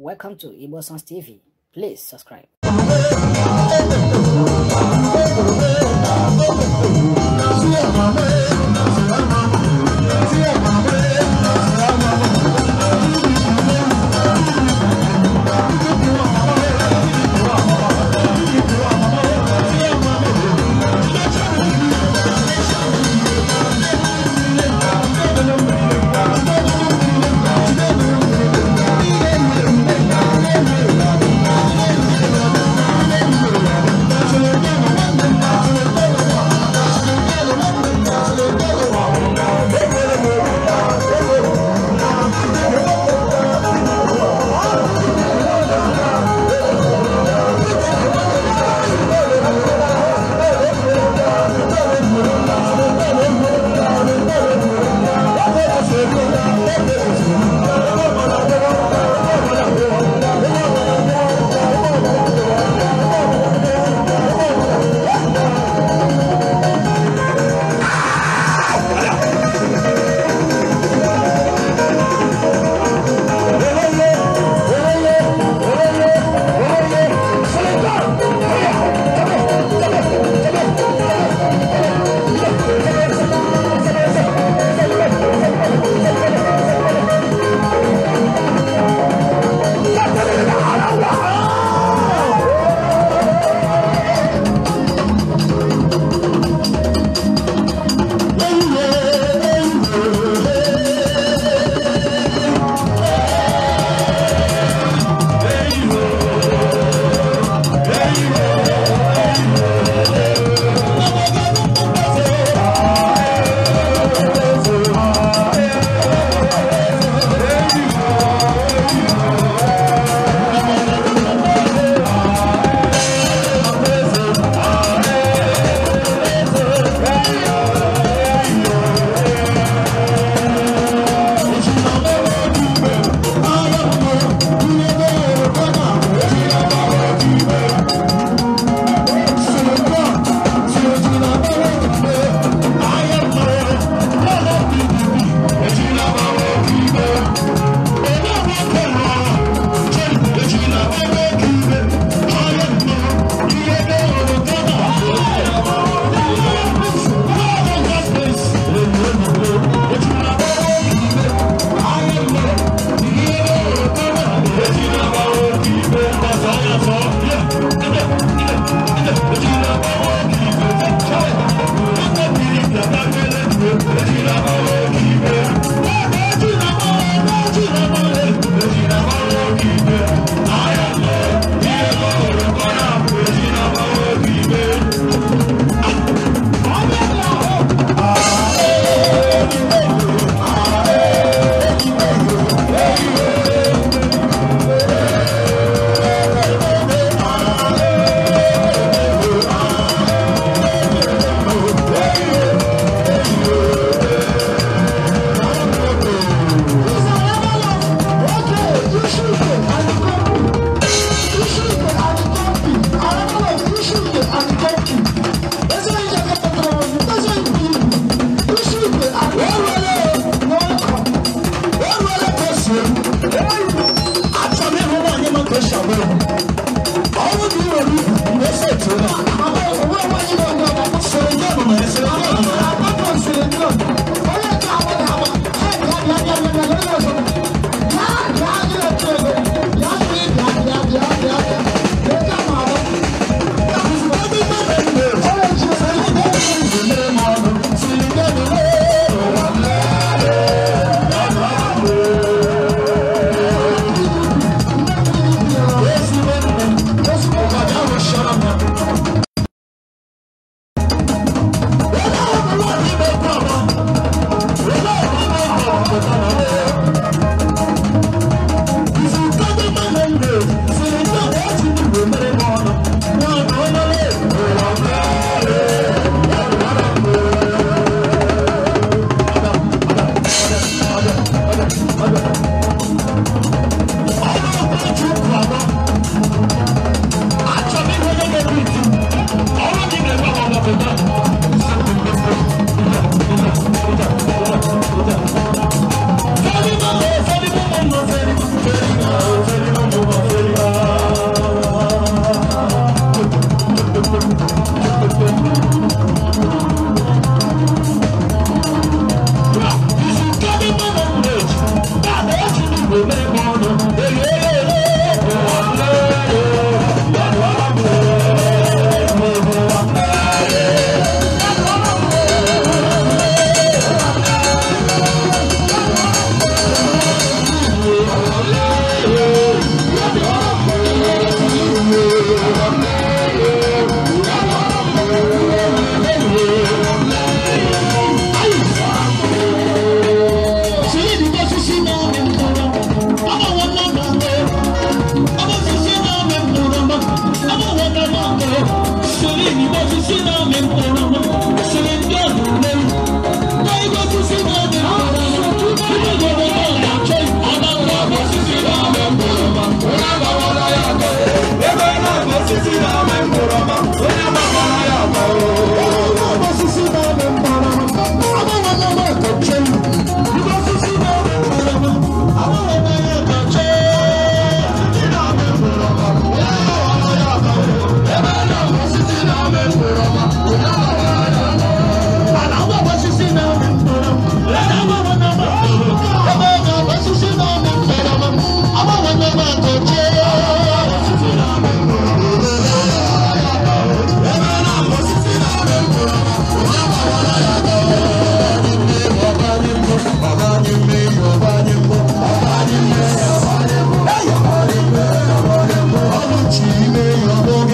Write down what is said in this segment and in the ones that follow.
Welcome to Igbo Sons TV. Please subscribe.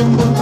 Thank you.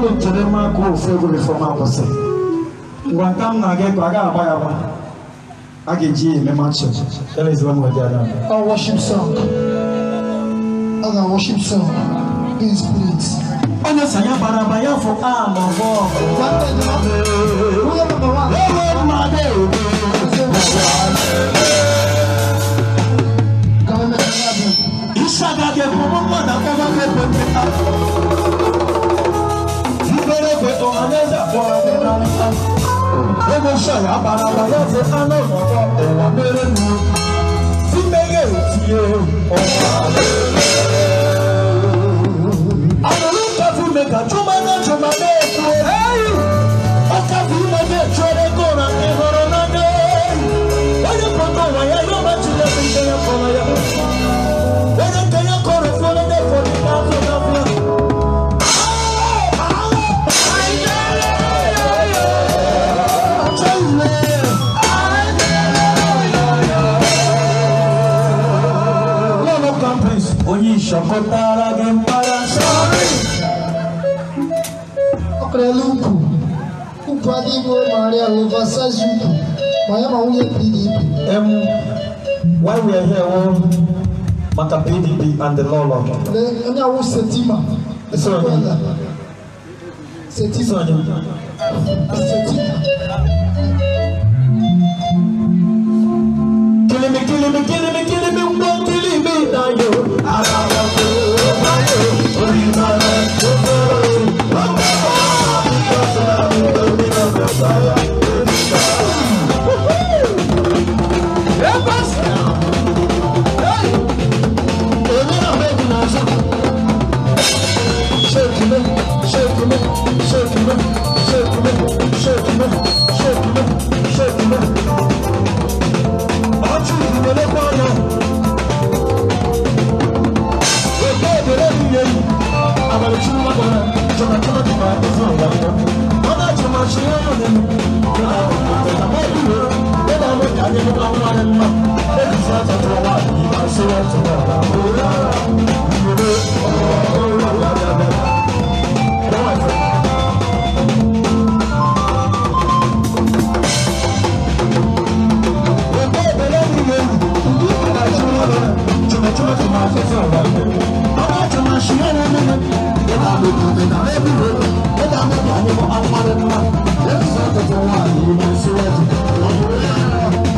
unu nchere mma ka ofe egwuregwu ma kwụsị ngwa nka m na-aga ịkọ a agba ya agba a ga-eji ya eme machi ọ worship song ọ ga worship song in spirit onye sanya bara aba ya fụ a ma ọ bụ ọgụ kọtara gị mgbada sọrị ọkrela ukwu ukwu adịghị maria ovasazi ukwu ma ya ma nwunye pdp em why we are here wọ maka pdp and the law law onye awụ setima setima setima setima I'm not a man. Let's not get one. You must let it.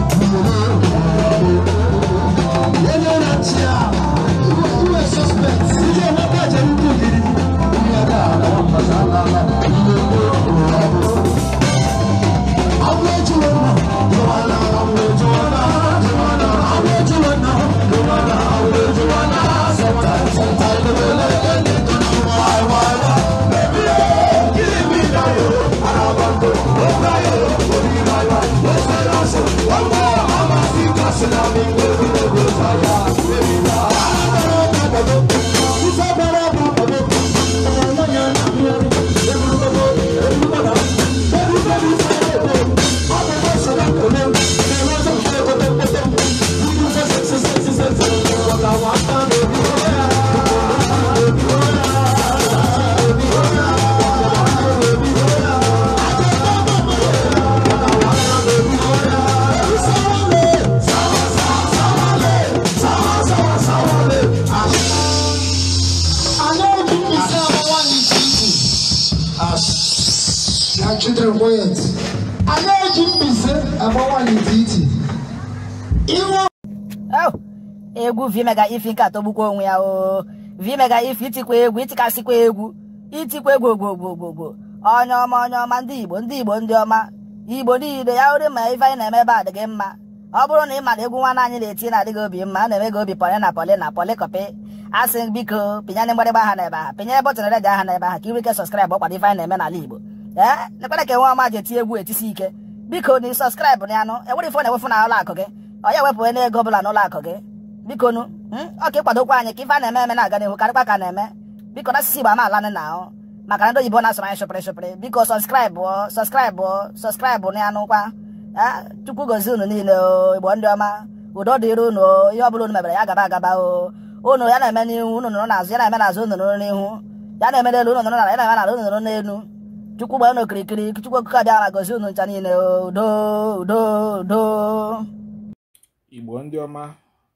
vimega if nke atọgbukwa onwe ya o vimega if itikwa egwu itikasịkwa egwu itikwa egwu ogbogbogbogbogbo onye ọma onye ọma ndị igbo ndị igbo ndị ọma igbo niile ya hụrụ ma ife anyị na-eme ebe adịghị mma ọ bụrụ na ị mara egwu nwanne anyị na-eti na-adịghị obi mma a na-eme gị obi pọlị na pọlị na pọlị kọpị asị biko pịnyere mgbarịgba ha n'ebe ha pịnyere bọtụn redio ha n'ebe ha ka ị sọskraịbụ ọkwado ife anyị na-eme n'ala igbo ee ekwere ka nwe ọma ji eti egwu etisi ike biko na ị sọskraịbụ na anụ ewere ife na-ewefu na ụlọ gị ọ ya ewepụghị n'ego ọ bụla n'ụlọ akụ gị bikonu ọka hmm? ịkwadokwa anyị ka ife a na-eme eme na-aga n'ihu karịkwa ka na-eme biko na asịsị igbo amaala alanị na ahụ maka na ndị oyibo na-asụrụ anyị shụpịrị shụpịrị biko sọskraịbụ sọskraịbụ sọskraịbụ na anụkwa chukwu gozie unu niile igbo ndị ọma udo dịrị unu ihe ọbụla unu mebere ya gaba agaba o unu ya eme n'ihu unu nụrụ n'azụ ya na-eme n'azụ unu nụrụ n'ihu ya na-eme n'elu unu ya na-eme n'ala unu chukwu okike abịa ma gozi unu ncha niile udo